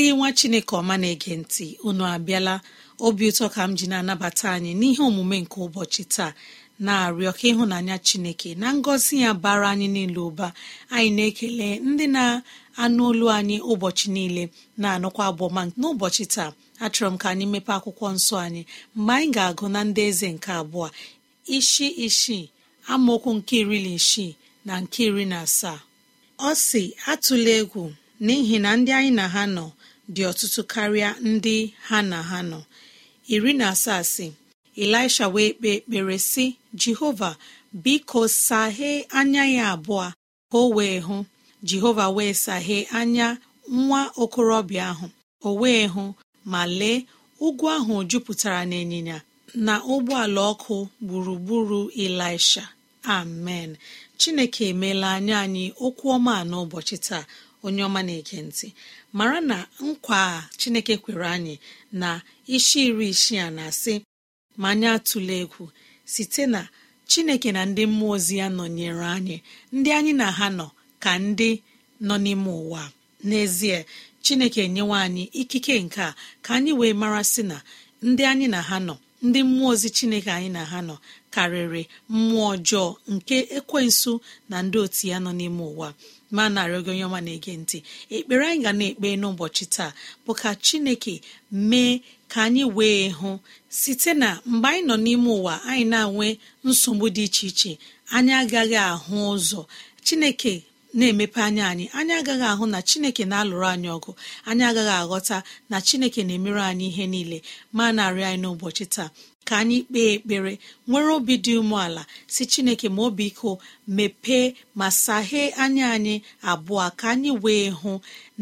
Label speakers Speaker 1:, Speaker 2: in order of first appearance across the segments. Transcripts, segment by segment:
Speaker 1: ndị nwa chineke ọma na-ege ntị unu abịala obi ụtọ ka m ji na-anabata anyị n'ihe omume nke ụbọchị taa na-arịọ ka ịhụnanya chineke na ngọzi ya bara anyị niile ụba anyị na-ekele ndị na-anụ olu anyị ụbọchị niile na-anụkwa abụọma n'ụbọchị taa achọrọ m ka anyị mepee akwụkwọ nsọ anyị mgbe anyị ga-agụ na ndị eze nke abụọ ishi ishi amaokwu nke iri na isii na nke iri na asaa ọ si atụla egwu n'ihi na ndị anyị na ha nọ dị ọtụtụ karịa ndị ha na ha nọ iri na asaa si elisha wee kpee ekpere sị jehova biko saghee anya ya abụọ ka o wee hụ jehova wee saghee anya nwa okorobịa ahụ o wee hụ ma lee ugwu ahụ jupụtara n'ịnyịnya na ụgbọala ọkụ gburugburu elisha amen chineke emeela anya anyị okwu ọma n'ụbọchị taa onye ọma na-ege ntị mara na nkwa a chineke kwere anyị na isi iri isi a na-asị ma anyị atụla egwu site na chineke na ndị mmụọ ozi ya nọnyere anyị ndị anyị na ha nọ ka ndị nọ n'ime ụwa n'ezie chineke nyewe anyị ikike nke a ka anyị wee mara sị na ndị anyị na ha nọ ndị mmụọ ozi chineke anyị na ha nọ karịrị mmụọ ọjọọ nke ekwensu na ndị otu ya nọ n'ime ụwa ma narị oge onye ọma na-ege ntị ekpere anyị ga na-ekpe n'ụbọchị taa bụ ka chineke mee ka anyị wee hụ site na mgbe anyị nọ n'ime ụwa anyị na-enwe nsogbu dị iche iche anyị agaghị ahụ ụzọ chineke na-emepe anya anyị anyị agaghị ahụ na chineke na-alụrụ anyị ọgụ anyị agaghị aghọta na chineke na-emere anyị ihe niile ma narị anyị n'ụbọchị taa ka anyị kpee ekpere nwere obi dị umeala si chineke ma obi iko mepee ma saghee anya anyị abụọ ka anyị wee hụ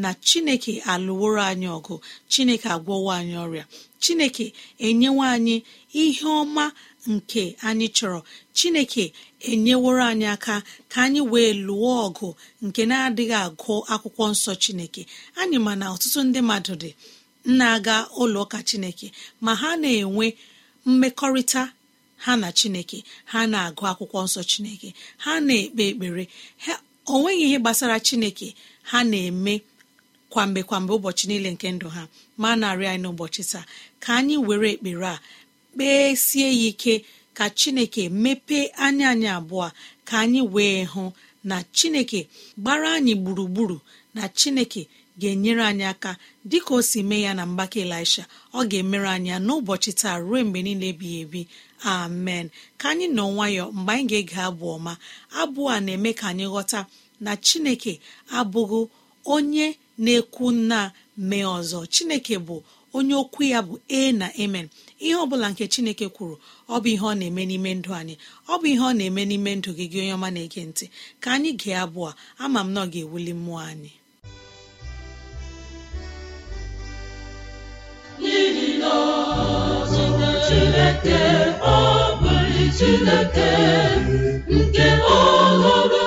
Speaker 1: na chineke alụworo anyị ọgụ chineke agwọwo anyị ọrịa chineke enyewa anyị ihe ọma nke anyị chọrọ chineke enyeworo anyị aka ka anyị wee lụọ ọgụ nke na-adịghị agụ akwụkwọ nsọ chineke anyị ma na ọtụtụ ndị mmadụ dị na-aga ụlọ ụka chineke ma ha na-enwe mmekọrịta ha na chineke ha na-agụ akwụkwọ nsọ chineke ha na-ekpe ekpere o nweghị ihe gbasara chineke ha na-eme kwamgbe kwamgbe ụbọchị niile nke ndụ ha ma narị anyị n'ụbọchị taa ka anyị were ekpere a kpesie ya ike ka chineke mepee anya anyị abụọ ka anyị wee hụ na chineke gbara anyị gburugburu na chineke ga-enyere anyị aka dịka o si mee ya na mgbake elisha ọ ga-emere anyị ya n'ụbọchị taa ruo mgbe niile ebighị ebi amen ka anyị nọ nwayọ mgbe anyị ga-ege abụ ọma abụ a na-eme ka anyị ghọta na chineke abụghị onye na-ekwu nna mee ọzọ chineke bụ onye okwu ya bụ e na emen ihe ọbụla nke chineke kwuru ọ bụ ihe ọ na-eme n'ime ndụ anyị ọ bụ ihe ọ na-eme n'ime ndụ gị onye ọma na-ege ntị ka anyị gee abụọ ama m na ọ ga-ewuli mmụọ anyị
Speaker 2: chineke ọ chineke nke ọhụrụ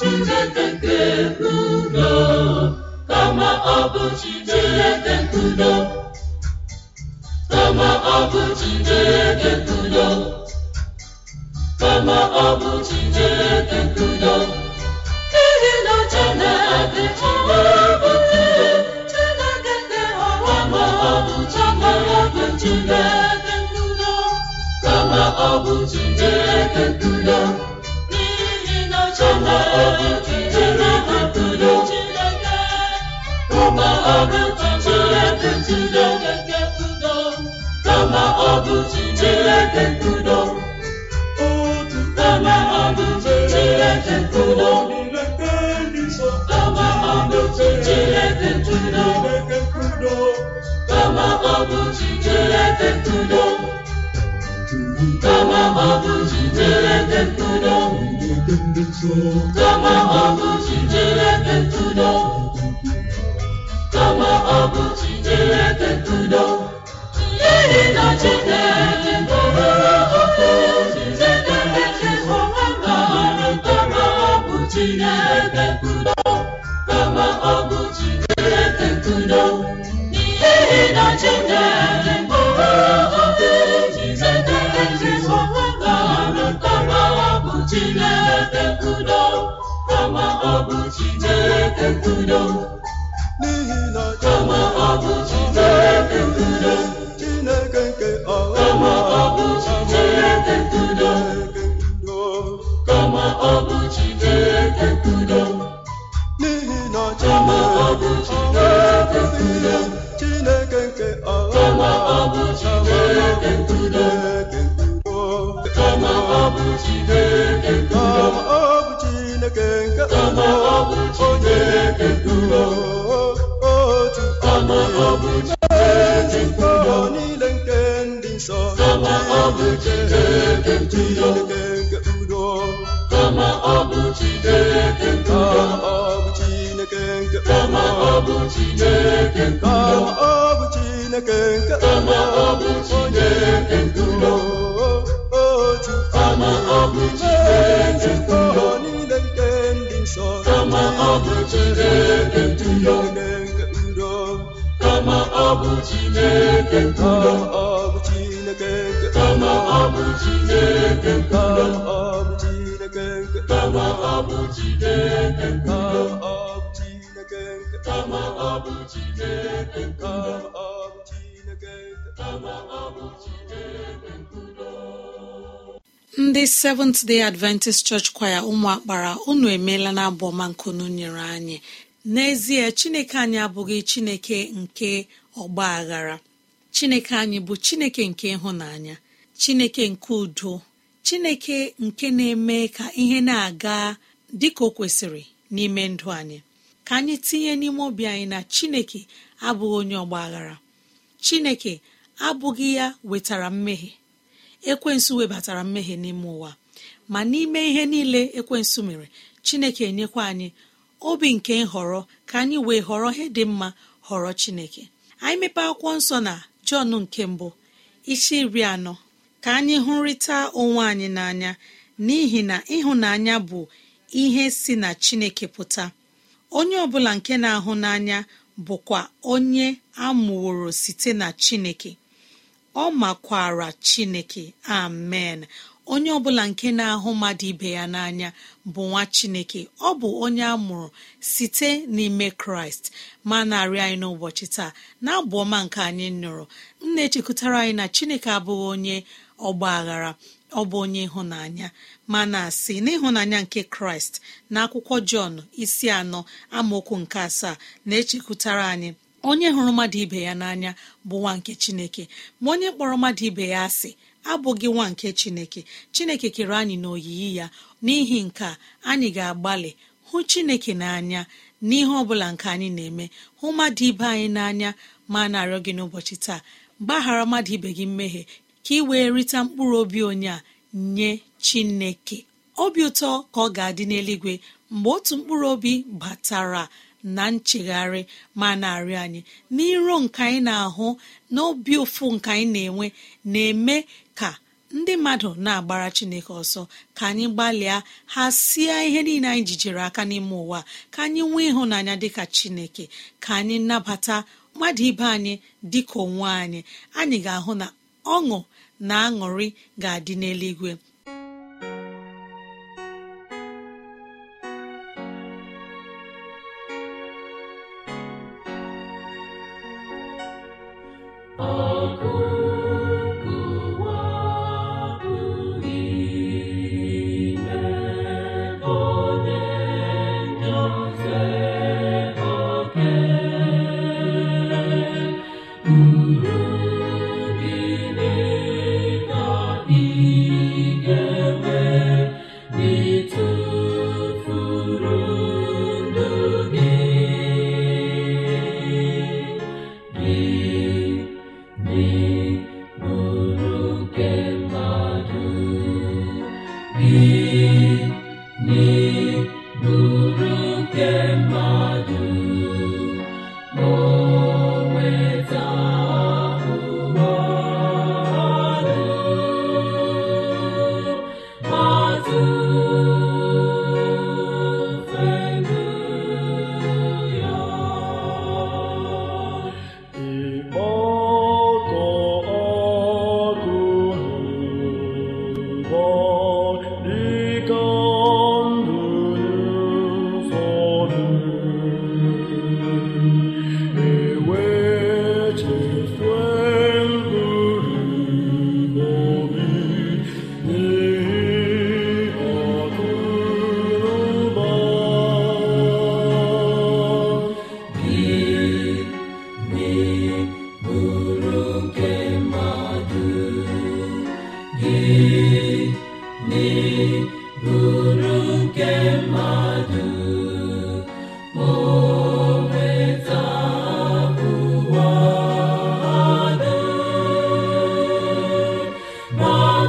Speaker 2: Chineke nke udo kama ọ bụ ọdún jitereke tudo kama ọdún jitereke tudo kama ọdún jitereke tudo n'ihi na Chineke gọbere oke kama Chineke na kama ọ bụ Chineke kama ọ bụ Chineke Chineke kama ọ bụ Chineke nke kama ọ bụ Chineke ndulo kama ọ bụ Chineke ndulo nke kama ọ bụ Chineke kama ọ bụ Chineke kama ọ bụ Chineke kama ọ bụ Chineke Chineke kama
Speaker 1: ndị Seventh Day Adventist Church kwaya ụmụakpara unu emeela na abụ ọma nkunu nyere anyị n'ezie Chineke anyị abụghị Chineke nke ọgba aghara Chineke anyị bụ Chineke nke ịhụnanya Chineke nke udo Chineke nke na-eme ka ihe na-aga dị ka o kwesịrị n'ime ndụ anyị ka anyị tinye n'ime obi anyị na chineke abụghị onye ọgba aghara chineke abụghị ya wetara mmehie ekwensu webatara mmehie n'ime ụwa ma n'ime ihe niile ekwensu mere chineke enyekwa anyị obi nke nhọrọ ka anyị wee họrọ ihe dị mma họrọ chineke anyị mepe akwụkwọ nsọ na jọn nke mbụ isi iri anọ ka anyị hụrịta onwe anyị n'anya n'ihi na ịhụnanya bụ ihe si na chineke pụta onye ọbụla nke na-ahụ n'anya bụkwa onye amụworo site na chineke ọ makwara chineke amen onye ọbụla nke na-ahụ mmadụ ibe ya n'anya bụ nwa chineke ọ bụ onye a mụrụ site n'ime kraịst ma narị anyị n'ụbọchị taa na-abụ ọma nke anyị nụrụ m na-echekwutara anyị na chineke abụghị onye ọgba aghara ọ bụ onye ịhụnanya ma na asị n'ịhụnanya nke kraịst na akwụkwọ jọn isi anọ amaokwu nke asaa na-echekwutara anyị onye hụrụ mmadụ ibe ya n'anya bụ nwa nke chineke ma onye kpọrọ mmadụ ibe ya asị abụghị nwa nke chineke chineke kere anyị n'oyiyi ya n'ihi nke anyị ga-agbalị hụ chineke n'anya n'ihe ọ bụla nke anyị na-eme hụ mmadụ ibe anyị n'anya ma na-arịọ gị n'ụbọchị taa gbaghara mmadụ ibe gị mmehie ka ị wee rịta mkpụrụ obi onye a nye chineke obi ụtọ ka ọ ga-adị n'eluigwe mgbe otu mkpụrụ obi batara na nchegharị ma na-arịọ anyị n'iro nke anyị na-ahụ na obi ụfụ nke anyị na-enwe na-eme ka ndị mmadụ na-agbara chineke ọsọ ka anyị gbalịa ha sie ihe niile anyị jijere aka n'ime ụwa ka anyị nwee ịhụnanya dịka chineke ka anyị nabata mmadụ ibe anyị dịka onwe anyị anyị ga-ahụ na ọṅụ na aṅụrị ga-adị n'eluigwe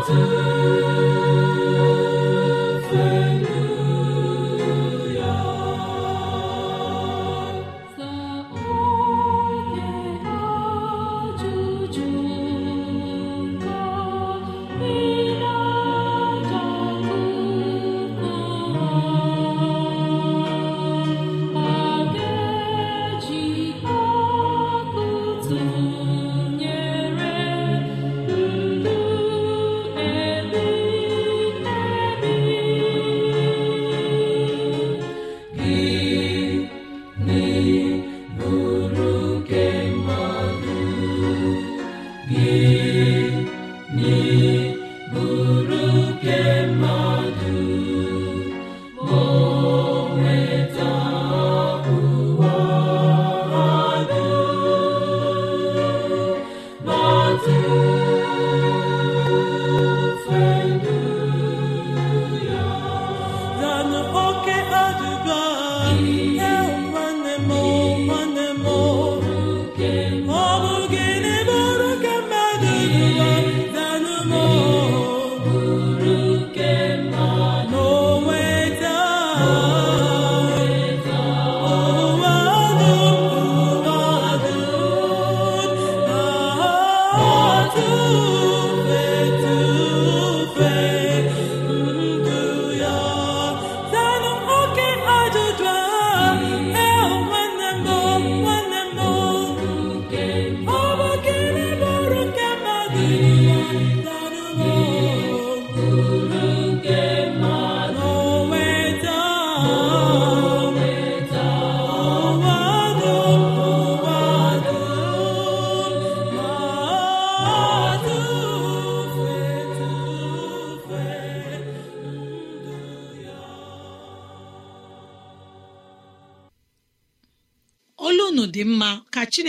Speaker 2: Thank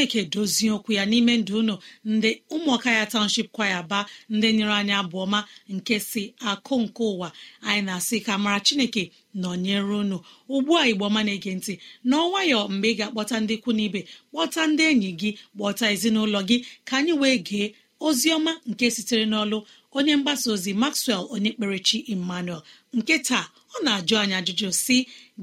Speaker 1: chineke dozie okwu ya n'ime ndụ unu ndị ụmụaka ya township kwaya aba ndị nyere anyị abụọma nke si akụ nke ụwa anyị na-asị ka mara chineke nọnyere unu ugbu a igbo ọma na-ege ntị n'ọnwayọ mgbe ị ga-akpọta ndị ikwu na ibe kpọta ndị enyi gị kpọta ezinụlọ gị ka anyị wee gee ozi ọma nke sitere n'ọlụ onye mgbasa ozi maxwell onye kperechi emmanuel nke taa ọ na-ajụ anyị ajụjụ si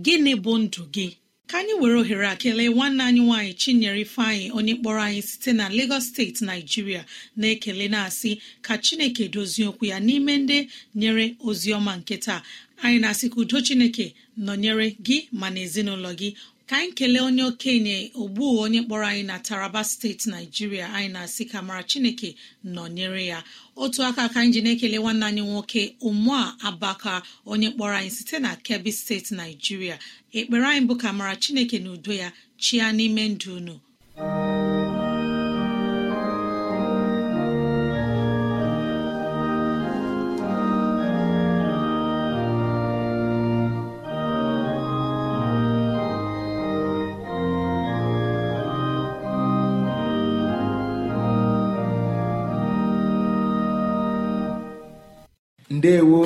Speaker 1: gịnị bụ ndụ gị ka anyị were ohere a kelee nwanne anyị nwaanyị chinyere ifeanyị onye kpọrọ anyị site na Lagos steeti naijiria na-ekele na-asị ka chineke dozie okwu ya n'ime ndị nyere ozi ọma nke taa anyị na-asị ka udo chineke nọnyere gị ma na ezinụlọ gị ka anyị kelee onye okenye ogbu onye kpọrọ anyị na taraba steeti naijiria anyị na-asị ka mara chineke nọnyere ya otu aka ka anyị ji na-ekele nwanne anyị nwoke ụmụa abaka onye kpọrọ anyị site na kebbi steeti naijiria ekpere anyị bụ ka mara chineke na udo ya chia n'ime ndụ unu
Speaker 3: ndewo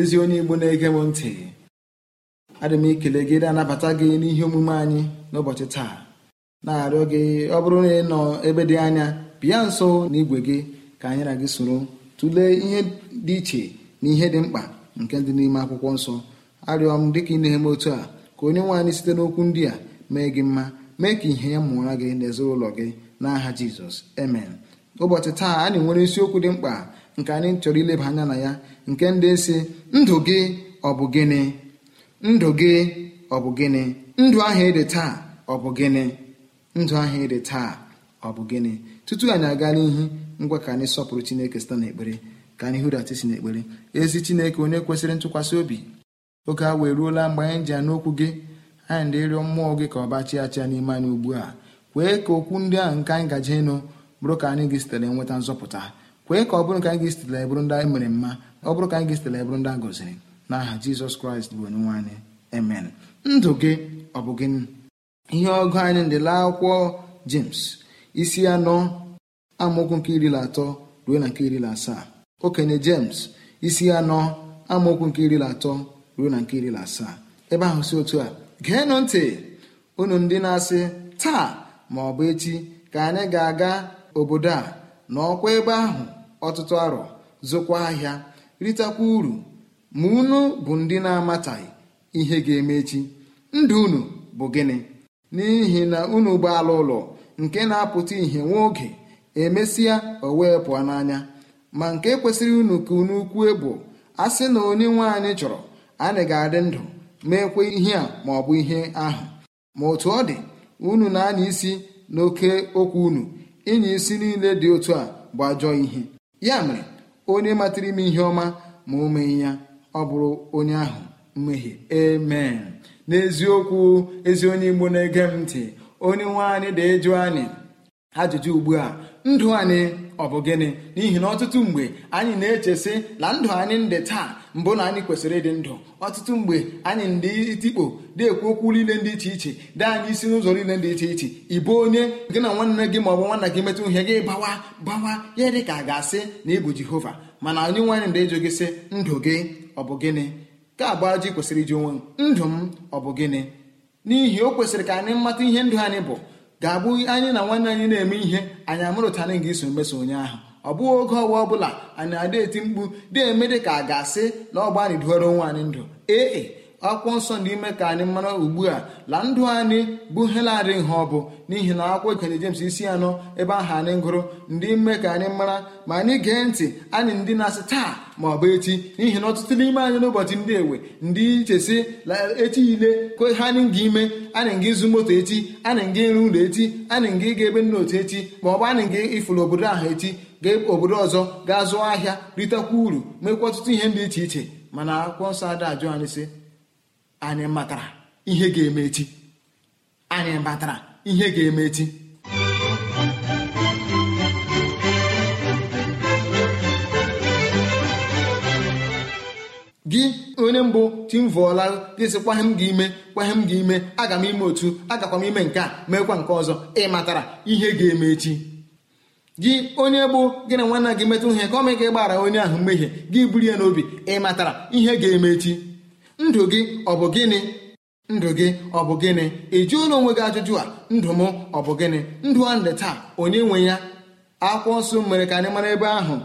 Speaker 3: ezi onye igbo na-ege m ntị adị m ikele gị na-anabata gị n'ihe omume anyị n'ụbọchị taa na-arịọ gị ọ bụrụ na ị nọ ebe dị anya bịa nso na igwe gị ka anyị na gị soro tụlee ihe dị iche na ihe dị mkpa nke dị n'ime akwụkwọ nsọ arịọ m dịka ị na-eme otu a ka onye nwe anyị site n'okwu ndị a mee gị mma mee ka ihe ya mụọra gị n'ezinụlọ gị n'aha jizọs amen ụbọchị taa anyị nwere isiokwu dị mkpa nke anyị chọrọ ileba anya na ya nke ndị si ndụ gị ọ bụ gịnị ndụ gị ọ bụ gịnị ndụ ahụ ịdị taa ọ bụ gịnị ndụ ahụ ịdị taa ọ bụ gịnị tutu anyị aga n'ihu ngwa ka anyị sọpụrụ chineke site n'ekpere ka anyị hụrata isi n'ekpere ezi chineke onye kwesịrị ntụkwasị obi oge a wee ruola mgbe anyị ji ya n'okwu gị anyị dị ịrịọ mmụọ gị ka ọ bachịa achịa n'ime anyị ugbu a kwee ka okwu ndị ahụ nke anyị gaje ịnụ bụrụ ka anyị gị sitere nweta nzọpụta kwee ka ọ bụrụ ka anyị ga-esitela ndị anyị mere mma ọ bụrụ ka anyị ga-esitela ebụrụ ndị a gọziri n'aha jizọs kraịst bụ onye nwaanyị emen ndụ gị ọ bụ gịnị ihe ọgụ anyị ndịla akwụkwọ james isi anọ amaokwu nke iri na atọ ruo na nke iri na asaa okenye james isi anọ amaokwu nke iri na atọ ruo na nke iri na asaa ebe ahụ si otu a geenụ ntị unu ndị na-asị taa ma ọ bụ echi ka anyị ga-aga obodo a n'ọkwa ebe ahụ ọtụtụ arọ zụkwa ahịa ritakwa uru ma unu bụ ndị na-amataghị ihe ga-eme echi ndụ unu bụ gịnị n'ihi na unu ala ụlọ nke na-apụta ihe nwa oge emesịa o wee pụọ n'anya ma nke kwesịrị unu ka unu kwue bụ a sị na onye nwe anyị chọrọ anyị ga-adị ndụ meekwe ihe a ma ọ bụ ihe ahụ ma otu ọ dị unu na-anya isi n'oke okwu unu ịnya isi niile dị otu a bụ ajọ ihe ya mere onye matara ime ihe ọma ma o mee ya ọ bụrụ onye ahụ mmehie amen n'eziokwu ezi onye igbo na-ege m ntị onye nwe anyị dị eju anyị ajụjụ ugbu a ndụ anyị ọ bụ gịnị n'ihi na ọtụtụ mgbe anyị na-echesị na ndụ anyị ndị taa mbụ na anyị kwesịrị ịdị ndụ ọtụtụ mgbe anyị ndị itikpo dị ekwu okwu niile dị iche iche dị anyị isi n'ụzọ niile dị iche iche ịbụ onye gị na nwanne gị ma ọ bụ nwanna gị metụ ihe gị bawa bawa ya dị ka ga-asị na ịbụ jehova mana onye nwaanyị ndị ịjụ gị sị ndụ gị ọ bụ gịnị ka abụ ji kwesịrị iji onwe ndụ m ọ bụ gịnị n'ihi o kwesịrị ka anyị mmata ihe ndụ anyị bụ ga abụ anyị na nwanne anyị na-eme ihe anyị amụrụtara gị iso mmeso onye ahụ ọ bụghị oge ọwa ọbụla anyị na-ada eti mkpu dị eme dị ka a ga-asị na ọgba anyị duoro anyị ndụ ee akwụkwọ nsọ ndị ime ka anyị mara ugbu a la ndụ anyị bụ heladị ha ọ bụ n'ihi na akwụkwọ ikenye James isi anọ ebe ahụ anyị gụrụ ndị ime ka anyị mara ma anyị gee ntị anyị ndị na-asị taa ma ọ bụ echi n'ihi na ọtụtụ n'ime anyị n'ụbọchị ndị ewe ndị ichesi echi yile kwe ha anyị ga ime anyị nga ịzụ moto echi anyị nga ịrụ ụlọ echi anyị ga ịga ebe nna otu echi ma ọ bụ anyị nga ịfụrụ obodo ahụ echi ga e, obodo ọzọ ga zụọ ahịa ritekwa uru mekwa ọtụtụ ihe dị iche iche mana akwụkwọ nsọ ada ajụ anyị sị anyị matara ihe ga-eme echi anyị matara ihe ga-eme echi gị onye mbụ timvụọla gị sị kwahe m gị ime kwahe m gị ime aga m ime otu agakwa m ime nke a meekwa nke ọzọ ị matara ihe ga-eme echi gị onye bụ gị na nwanna gị metụ ihe ka ọ mee gbara onye ahụ mmehie gị buru ya n'obi ị matara ihe ga-eme echi ndụ gị ọ bụ gịnị ndụ gị ọ bụ gịnị ị ụlọ onwe gị ajụjụ a ndụ m ọ bụ gịnị ndụ a ndị taa onye nwe ya akwụkwọ nsọ mere ka anyị mara ebe ahụ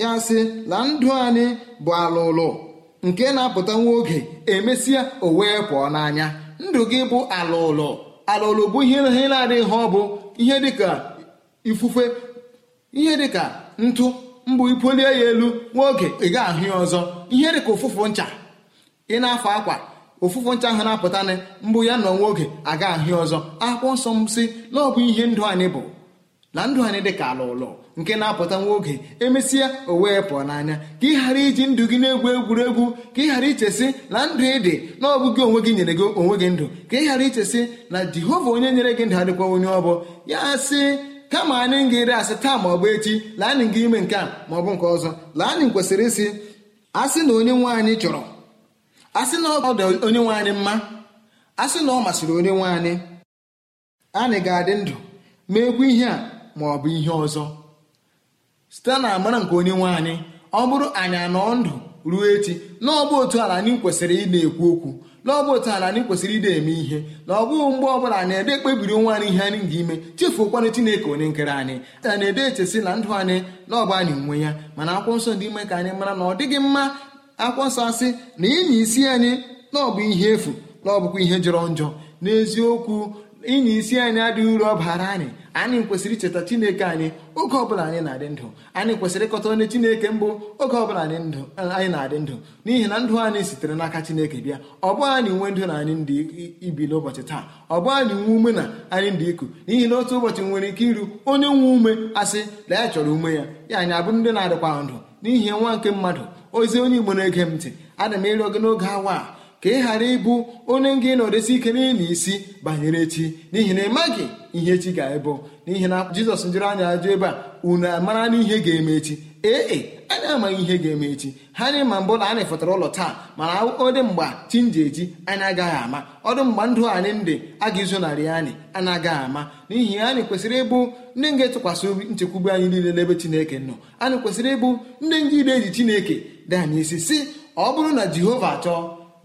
Speaker 3: ya sị la ndụ anyị bụ alụlụ nke na-apụta nwa oge emesịa o wee pụọ n'anya ndụ gị bụ alụlụ alụlụ bụ ihe na-adịghị ọ bụ ihe dịka ifufe ihe dịka ntụ mbụ ipolie ya elu nwa oge ị ga-ahụ ya ọzọ ihe dịka ụfụfụ ncha ị na-afọ akwa ụfụfụ ncha ahụ na-apụtanị mbụ ya na onwe oge aga ahịa ọzọ akwụkwọ nsọ m si na ọ bụ ihe ndụ anyị bụ na ndụ anyị dị ka ala ụlọ nke na-apụta nwa oge emesịa o wee pụọ n'anya ka ị ghara iji ndụ gị na-egwu egwuregwu ka ị ghara ichesị na ndụ ị dị na ọ bụ gị onwe gị nyere gị onwe gị ndụ ka ị ghara ichesị na jehova onye nyere gị ndụ adịkwa onye ọbụ ya sị kama anyị ga-eri asị taa ma ọ bụ echi laanị gị ime nke a ma nke ọzọ laanị kwesịrị isi a sị na onye nwe anyị chọrọ asị na ọ dị onye nwe anyị mma sị na ọ masịrị onye nwe anyị anyị ga-adị ndụ meekwa ihe a ma ọ bụ ihe ọzọ site na amara nke onye nwe anyị ọ bụrụ anyị anọọ ndụ ruo echi na ọ bụ otu ala anyị kwesịrị ị na-ekwu okwu na ọ bụ otu ala anyị kwesịrị ịda eme ihe na ọ bụghị mgbe ọ bụla anyị ede ekpebiri onwe anyị ihe anyị ga-ime chefuokwana Chineke onye nkere anyị a na-ede echesi na ndụ anyị na ọba anyị nwe ya mana akwụkwọ nsọ ndị ime ka anyị mara na ọ dịghị mma akwụkwọ nsọ asị na ịnya isi anyị na ọ bụ ihe efu na ọ bụkwa ihe jọrọ njọ n'eziokwu ịnya isi anyị adịghị uru ọ bara anyị anyị kwesịrị icheta chineke anyị oge ọbụla anyị na-adị ndụ anyị kwesịrị ịkọta onye chineke mbụ oge ọbụla anyị na-adị ndụ n'ihi na ndụ anyị sitere n'aka chineke bịa ọ bụ anyị nwe ndụ na anyị ndị ibi n'ụbọchị taa ọ bụ anyị nwe ume na anyị ndị iku n'ihi na otu ụbọchị nwere ike iru onye nwe ume asị na ya chọrọ ume ya ya anyị abụ ndị na-adịkwa ndụ n'ihi nwa nke mmadụ ozi onye igbo na-ege m ntị ana m ịrịọ gị n'oge awa a ka ị ghara ịbụ onye nga na nọdesi ike n'ịlụ isi banyere echi n'ihi na ị ihe echi ga-ebụ n'ihi na jizọs jụrụ anya ajụ ebe a unu amara n'ihe ga-eme echi ee anyị amaghị ihe ga-eme echi ha anyị ma mbụ na anyị fọtara ụlọ taa mana ọdị mgba chinji nji eji anyị agaghị ama ọdụ mgba ndụ anyị ndị a ga-izonarị anyị anyị agaghị ama n'ihi anyị kwesịrị ịbụ ndị ga-etụkwasị obi nchekwube anyị niile n'ebe chineke nọ anyị kwesịrị ịbụ ndị ngide eji chineke dị anyị isi si ọ bụrụ na jehova chọọ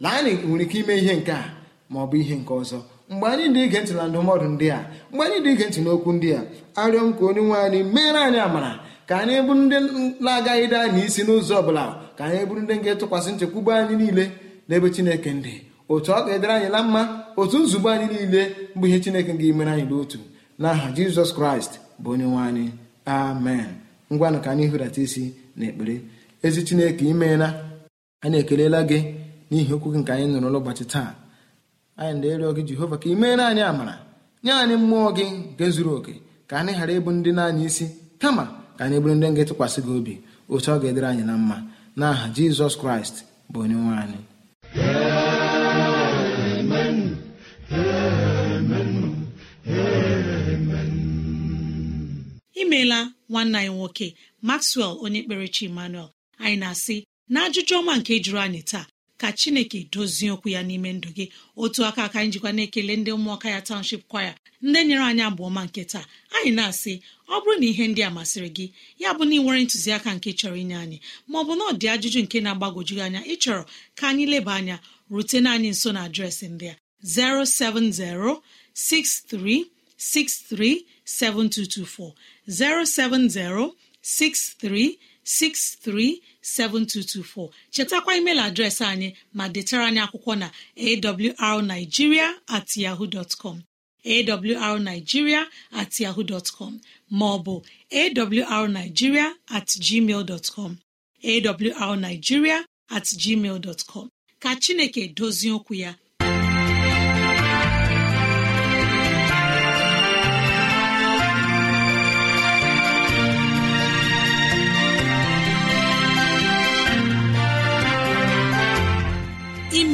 Speaker 3: na anyị nwere ike ime ihe nke a ma ọ bụ ihe nke ọzọ mgbe anyị dị ige ntị na ndụmọdụ ndị a mgbe anyị dị ige ntị n'okwu ndị a arịọ m ka onye nwe anyị meere anyị amara ka anyị bụrụ ndị na-agaghị daa anyị isi n'ụzọ ọbụla ka anyị bụrụ ndị ga-etụkwasị nchekwube anyị niile n'ebe chineke ndị otu ọ ga-edere anyị na mma otu nzube anyị niile bụ ihe chineke ga-emere anyị n'otu n'aha jizọs kraịst bụ onye nwe anyị amen ngwanụ ka anyị hụrata isi na ekpere ezi chineke imeela anyị ekelela gị n'ihi okwu gị nke anyị nụrụ n'ụbọchị taa anyị na-erịọ gị jehova ka imeela anyị amara nye anyị mmụọ gị nke zuru oke ka anyị ghara ịbụ ndị na-anya isi kama ka anyị bụrụ ndị nga etụkwasị gị obi otu ọ ga-edere anyị na mma n'aha jizọs kraịst bụ onye nwe anyị imeela
Speaker 1: nwanne anyị nwoke maxwell onye kpere chi emmanuel anyị na-asị na ajụjụ ọma nke jụrụ anyị taa ka chineke dozie okwu ya n'ime ndụ gị otu aka aka anyị jikwa na-ekele ndị ụmụaka ya township kwaya ndị nyere anyị abụọ ma nke taa anyị na-asị ọ bụrụ na ihe ndị a masịrị gị ya bụ na ị nwere ntụziaka nke chọrọ inye anyị maọbụ na ọ dị ajụjụ nke na-agbagwoju anya ịchọrọ ka anyị leba anya rutena anyị nso na adreesị ndị a 07063637224 0706363 7224. chetakwa email adreesị anyị ma detara anyị akwụkwọ na awrnigeria at ma com bụ at yahoo com maọbụ atgmal com at com ka Chineke dozie okwu ya